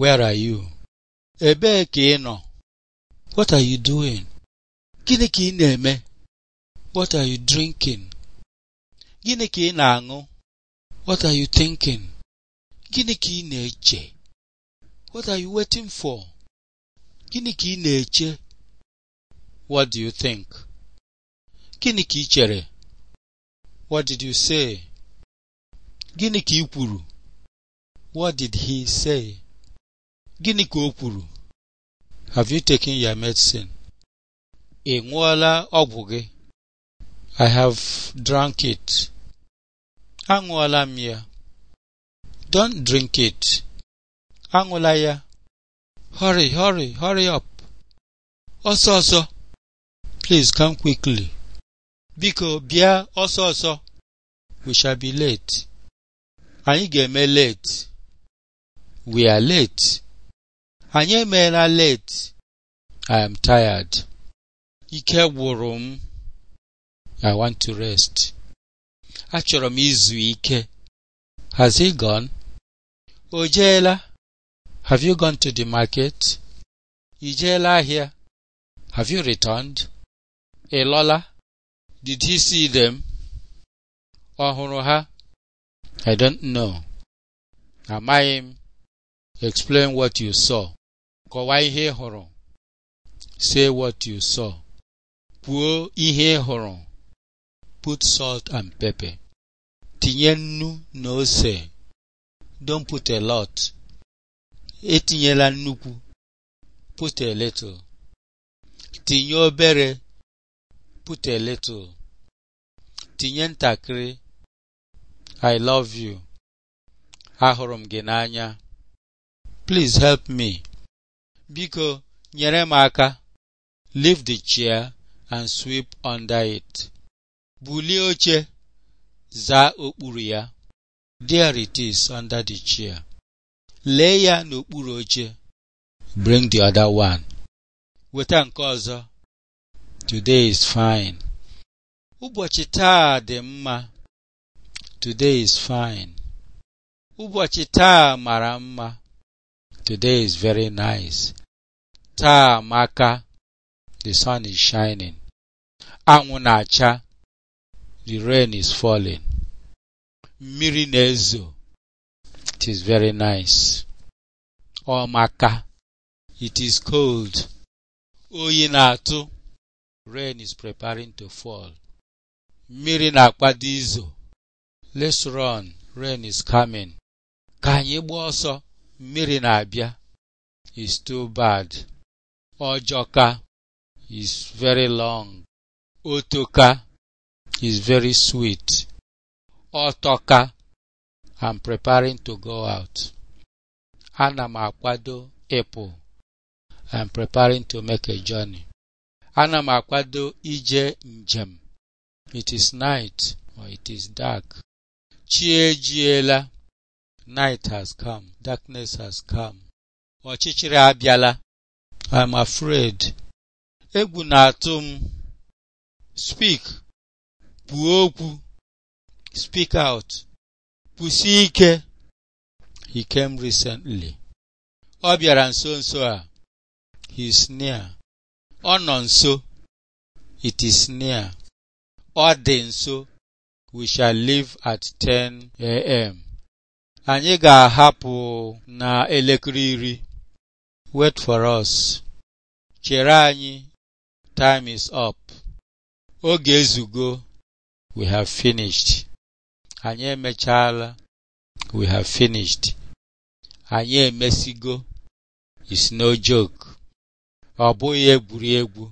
Where are you? Ebee ka ị nọ? What are you doing? Gịnị ka ị na-eme? What are you drinking? Gịnị ka ị na-aṅụ? What are you thinking? Gịnị ka ị na-eche? What are you waiting for? Gịnị ka ị na-eche? What do you think? Gịnị ka ị chere? What did you say? Gịnị ka ị kwuru? What did he say? Gịnị ka o kwuru? Have you taken your medicine? Ị ṅụọla ọgwụ gị? I have drank it. Aṅụọla m ya. Don't drink it. Aṅụla ya. Hurry, hurry, hurry up. Ọsọ ọsọ. Please come quickly. Biko bịa ọsọ ọsọ. We shall be late. Anyị ga-eme late. We are late. anyị emeela late i am tired ike gwụrụ m i want to rest achọrọ m izu ike has he gone o have you gone to the market Ijeela jeela ahịa have you returned ị lọla did he see them ọ hụrụ ha i don't know amaghị m explain what you saw kọwaa ihe ị hụrụ say what you saw kwuo ihe ị hụrụ put salt and pepper tinye nnu na ose don't put a lot etinyela nnukwu put a little tinye obere put a little tinye ntakịrị i love you ahụrụ m gị n'anya please help me Biko, nyere m aka. Leave the chair and sweep under it. Bulie oche, zaa okpuru ya. There it is under the chair. Lee ya n'okpuru oche. Bring the other one. Weta nke ọzọ. Today is fine. Ụbọchị taa dị mma. Today is fine. Ụbọchị taa mara mma. Today is very nice. taa amaka the sun is shining anwụ na-acha the rain is falling mmiri na-ezo it is very nice ọ maka it is cold oyi na-atụ rain is preparing to fall mmiri na-akpado izo let's run rain is coming ka anyị gbaa ọsọ mmiri na-abịa is too bad Ojoka is very long. Otoka is very sweet. ọtọka am preparing to go out. Ana m akwado ịpụ. am preparing to make a journey. Ana m akwado ije njem. It is night or it is dark. Chi ejiela. Night has come. Darkness has come. Ọchịchịrị abịala. I'm afraid. Egwu na-atụ m. Speak. Kwuo okwu. Speak out. kwụsị ike. He came recently. Ọ bịara nso nso a. He is near. Ọ nọ nso. It is near. Ọ dị nso. We shall leave at 10 a.m. Anyị ga-ahapụ na elekere iri. Wait for us. chere anyị time is up oge ezugo we have finished anyị emechaala we have finished anyị emesigo is no joke ọ bụghị egwuregwu